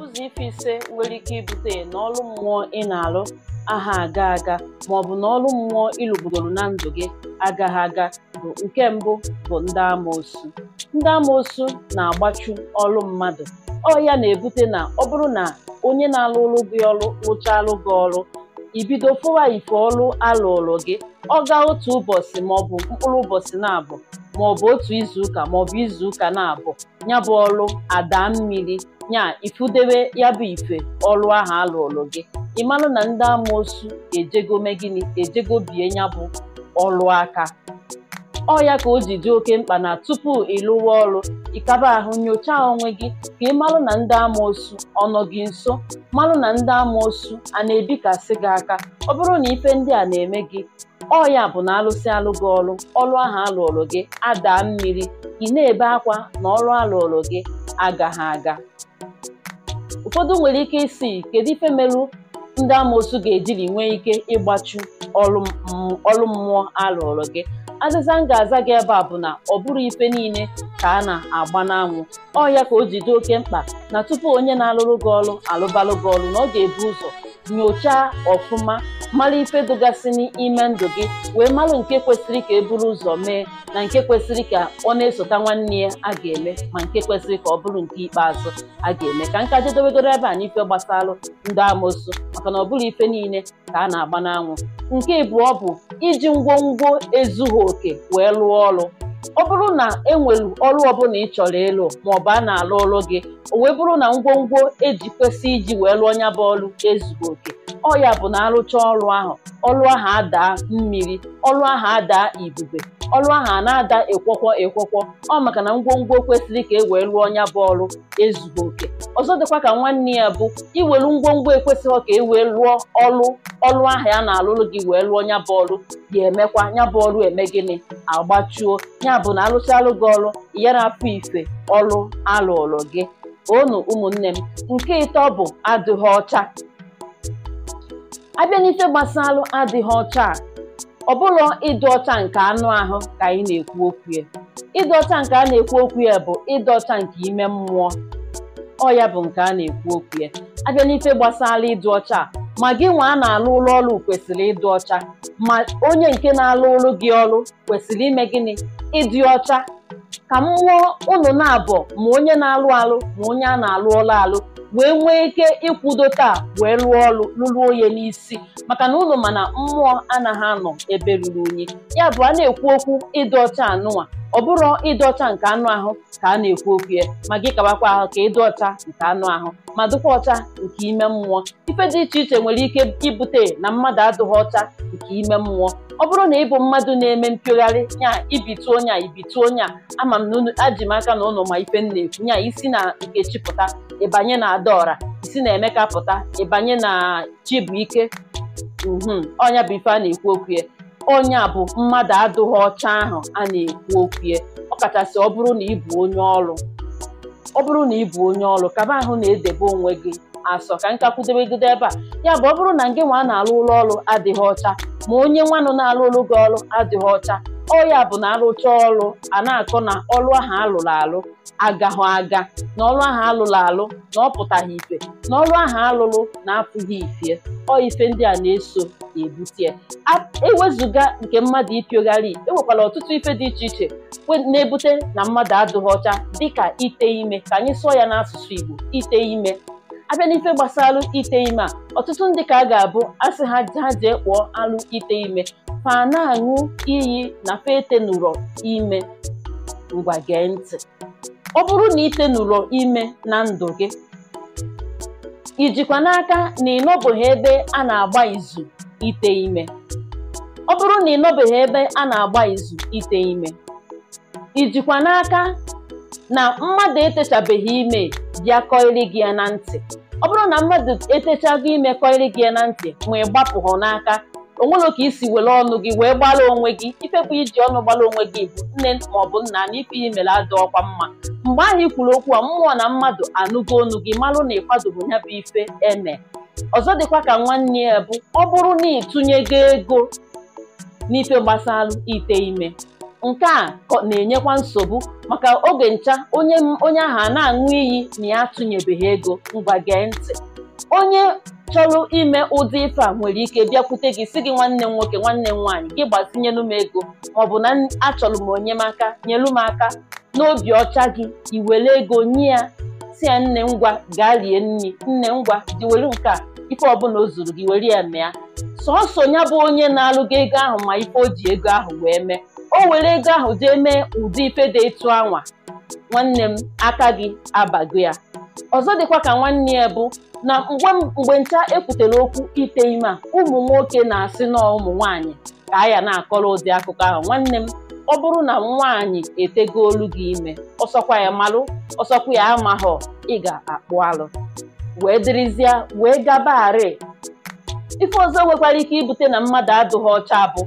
Ụzọ ife ise nwere ike ibute n'ọlụ mmụọ ị na-arụ aha aga aga maọbụ na ọrụ mmụọ ị na ndụ gị agaghị aga bụ nke mbụ bụ ndị amoosu ndị amoosu na-agbachu ọrụ mmadụ ọ ya na-ebute na ọ bụrụ na onye na-arụrụ gị ọrụ rụchalụ gị ọrụ ibido fụwa ife ọrụ alụrụ gị ọ gaa otu ụbọchị maọbụ mkpụrụ ụbọchị na-abụ maọbụ otu izuụka maọbụ izuụka na-abụ ya bụ ọlụ ada mmiri nya ifudebe ya bụ ife ọlụ ahụ alụọlụ gị ịmalụ na ndị amụosu ejego gịnị ejego bie ya bụ ọrụ aka ọ ya ka o ji dị oke mkpa na tupu ịlụwa ọrụ ịkaba ahụ nyochaa onwe gị ka ịmalụ na ndị amoosu ọnọ gị nso malụ na ndị amụosu a na-ebikasị gị aka ọ bụrụ na ife ndị a na-eme gị ọ ya bụ na alụsị alụ gị ọrụ ọlụ ahụ alụọlụ gị adaa mmiri ị na-ebe akwa na alụ alụọlụ gị ha aga ụfọdụ nwere ike isi kedu ife merụ ndị amoosu ga-ejiri nwee ike ịgbachu ọlụ mmụọ alụọrụ gị azịza m ga-aza gị ebe a bụ na ọ bụrụ ife niile ka a na-agba n'anwụ ọ ya ka o jide oke mkpa na tupu onye na-alụrụ gị ọrụ alụbalụ gị ọrụ na ọ ga-ebu ụzọ nyochaa ọfụma mara ife dụgasị n'ime ndụ gị wee mara nke kwesịrị ka e buru ụzọ mee na nke kwesịrị ka ọ na-esota nwanne ya a ga-eme ma nke kwesịrị ka ọ bụrụ nke ikpeazụ a ga-eme ka nka jedobegoro ebe a n'ife gbasalụ ndị amoosu maka na ọ bụrụ ife niile ka a na-agba n'anwụ nke abụọ bụ iji ngwongwo ezughị oke wee rụọ ọrụ ọ bụrụ na e enwelu ọrụ ọbụla ị chọrọ ịlụ maọbụ a na-alụ ọrụ gị o wee bụrụ na ngwongwo eji kwesị iji wee lụọ nya bụ ọrụ oke ọ ya bụ na arụcha ọrụ ahụ ọrụ ahụ adaa mmiri ọrụ ahụ adaa ibube ọrụ ahụ a na-ada ekwọkwọ ekwọkwọ ọ maka na ngwongwo kwesịrị ka e wee lụọ nya bụ ọrụ oke ọzọ dịkwa ka nwanne ya bụ iwelu ngwongwo ekwesịghị ka e wee lụọ ọrụ ọlụ ahụ ya na-alụrụ gị wee lụọ nya bụ emekwa nya bụ eme gịnị agbachuo ya bụ na alụchalụ gị ọrụ ya na-afụ ife ọlụ alụrụ gị onu ụmụnne m nke ịtọ bụ adịghị ọcha abịa n'ife gbasalụ adịghị ọcha a ọbụlọ ịdị ọcha nke anụ ahụ ka anyị na-ekwu okwu ya ịdị ọcha nke a na-ekwu okwu ya bụ ịdị ọcha nke ime mmụọ ọ ya bụ nke a na-ekwu okwu ya abịa n'ife gbasara ịdị ọcha a ma gị nwa a na-alụ ụlọ ọrụ kwesịrị ịdị ọcha ma onye nke na-alụ ụlọ gị ọrụ kwesịrị ime gịnị ịdị ọcha ka m mụọ ụnụ na-abọ ma onye na-alụ alụ ma onye a na-alụ ọlụ alụ wee nwee ike ịkwudo taa wee lụọ ọrụ lụruo onye n'isi maka na ụlọ mana mmụọ anaghị anọ ebe ruru unyi ya bụ a na-ekwu okwu ịdị ọcha anụnwa ọ bụrụ ịdị ọcha nke anụ ahụ ka a na-ekwu okwu ya ma gị kabakwa ahụ ka ịdị ọcha nke anụ ahụ ma dịkwa ọcha nke ime mmụọ ife dị iche iche nwere ike ibute na mmadụ adịghị ọcha nke ime mmụọ ọ bụrụ na ịbụ mmadụ na-eme mpiogharị nya ibituo nya ibituo nya ama m aji m aka na ụlọ ma ife na-ekwu nya isi na nkechi pụta ịbanye na adaọra isi na emeka pụta ịbanye na chibụike ike mhm, ọnya bụ ife a na-ekwu okwu ya onye a bụ mmadụ adụghị ọcha ahụ a na-ekwu okwu ya ọkachasị ọ bụrụ na ị bụ onye ọrụ ọ bụrụ na ị onye ọrụ kaba ahụ na-edebe onwe gị asọ ka nkakwudebegide ebe a ya bụ ọ bụrụ na gị nwa na-alụ ụlọ ọrụ adịghị ọcha ma onye nwanụ na-alụ ụlọ gị ọrụ adịghị ọcha ọya bụ na arụcha ọrụ a na-akọ na ọrụ ahụ alụrụ alụ agahụ aga na ọrụ ahụ alụrụ alụ na ọ pụtaghị ife na ọrụ ahụ alụrụ na-apụghị ife ọ ife ndị a na-eso na-ebute ewezụga nke mmadụ ịpịogharị enwekwara ọtụtụ ife dị iche iche na-ebute na mmadụ adịghị ọcha dịka ite ime ka anyị sụọ ya n'asụsụ Igbo ite ime abịa n'ife gbasara ite ime a ọtụtụ ndị ka a ga-abụ asị ha ha jee kpụọ alụ ite ime Fa na-aṅụ iyi na fa etenụrọ ime ngwa gee ntị ọ bụrụ na itenụrọ ime na ndụ gị ijikwa n'aka na ịnọbụghị ebe a na-agba izu ite ime ọ bụrụ na ịnọbeghị ebe a na-agba izu ite ime ijikwa n'aka na mmadụ etechabeghị ime bịa kọịrị gị ya na ntị ọ bụrụ na mmadụ etechago ime kọịrị gị ya na ntị ma ị gbapụghị n'aka onwere ka isi were ọnụ gị wee gbara onwe gị ifekwa iji ọnụ gbara onwe gị bụ nne maọbụ nna na ife ihe mere adị ọkwa mma mgbe ahụ kwuru okwu a mmụọ na mmadụ anụgo onu gị marụ na bụ ya bụ ife eme ọzọ dịkwa ka nwanne ya bụ ọ bụrụ na ịtụnyego ego n'ife gbasara ite ime nke a na-enyekwa nsogbu maka oge ncha onye ahụ a na-aṅụ iyi na ya atụnyebeghị ego ngwa gee ntị onye chọrọ ime ụdị ife a nwere ike bịakwute gị si gị nwanne m nwoke nwanne m nwaanyị gị gbazinyelu m ego maọbụ na achọrọ m onyemaka nyelu m aka n'obi ọcha gị iwere ego nye ya si ya nne ngwa gaa rie nri nne ngwa diwere nke a ife ọbụla o zuru gị were ya mee sọsọ ya bụ onye na-alụ gị ego ahụ ma ife o ji ego ahụ wee mee o were ego ahụ jee mee ụdị ife dị ịtụ anwa nwanne m aka gị abago ya ọzọ dịkwa ka nwanne ya bụ na mgbe ncha ekwutere okwu ite ime a ụmụ nwoke na-asị na ụmụ nwaanyị ka a ya na-akọrọ ụdị akụkọ ahụ nwanne m ọ bụrụ na nwaanyị etego olu gị ime ọsọkwa ya malụ ọsọkwa ya amaghọ ị ga-akpụ alụ wee dịrịzịa wee gabagharị ife ọzọ nwekwara ike ibute na mmadụ adụghị ọcha bụ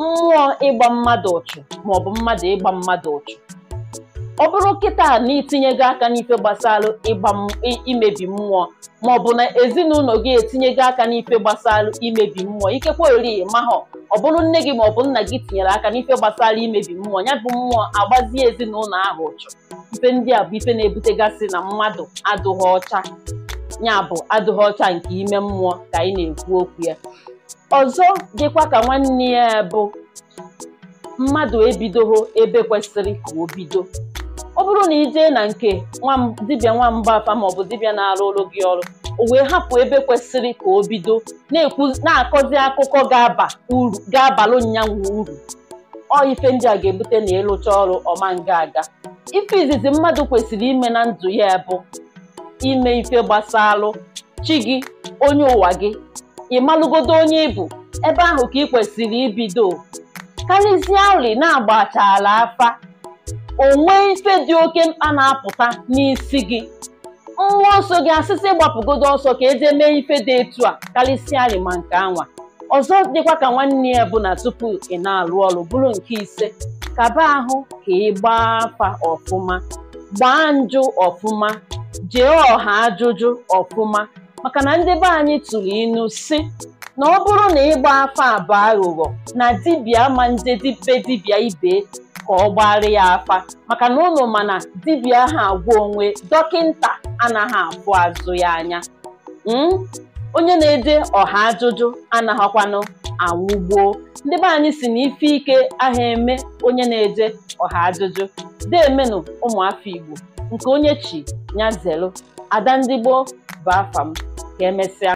mmụọ ịgba mmadụ ọchụ maọbụ mmadụ ịgba mmadụ ọchụ ọ bụrụ kịta na itinyego aka n'ife gbasara imebi mmụọ maọbụ na ezinụlọ gị etinyego aka n'ife gbasara imebi mmụọ ikekwe ori mahọ ọ bụrụ nne gị maọbụ nna gị tinyere aka n'ife gbasara imebi mmụọ ya bụ mmụọ agbazie ezinụlọ ahụ ụchụ ife ndị a bụ ife na-ebutegasị na mmadụ adụghị ọcha ya bụ adụghị ọcha nke ime mmụọ ka anyị na-ekwu okwu ya ọzọ dịkwa ka nwanne ya bụ mmadụ ebidogho ebe kwesịrị ka o bido ọ bụrụ na ijee na nke dibịa nwamba afa maọbụ dibịa na-arụ ụlọ gị ọrụ o wee hapụ ebe kwesịrị ka o bido na-akọzi akụkọ ga-abalụ nyanwụ uru ọ ife ndị a ga-ebute na ịlụcha ọrụ ọma nga aga ife izizi mmadụ kwesịrị ime na ndụ ya bụ ime ife gbasalụ chi gị onye ụwa gị ịmalụgodo onye ịbụ ebe ahụ ka ị kwesịrị ibido karịzie ori na-agbachala afa onwe ife dị oke mkpa na-apụta n'isi gị nwa ọsọ gị asịsị gbapụgodo ọsọ ka eje mee ife dị etu a karịsịa rịma nke anwa ọzọ dịkwa ka nwanne ya bụ na tupu ị na-alụ ọrụ bụrụ nke ise kaba ahụ ka ị gbaa afa ọfụma gbaa njụ ọfụma jee ọha ajụjụ ọfụma maka na ndị be anyị tụrụ inu si na ọ bụrụ na ịgba afa abụọ aghụghọ na dibịa ma ndị be dibịa ibe ka ọ gbara ya afa maka na ụnụ mana dibịa ha agwa onwe dọkịnta anaghị abụ azụ ya anya hmm? onye na-ede ọha ajụjụ anaghịkwanụ anwụgbuo ndị be anyị si na ife ike aha eme onye na-ede ọha ajụjụ dị deemenụ ụmụafọ Igbo nke onye chi nyazelu ada ndị gboo bụ ka emesịa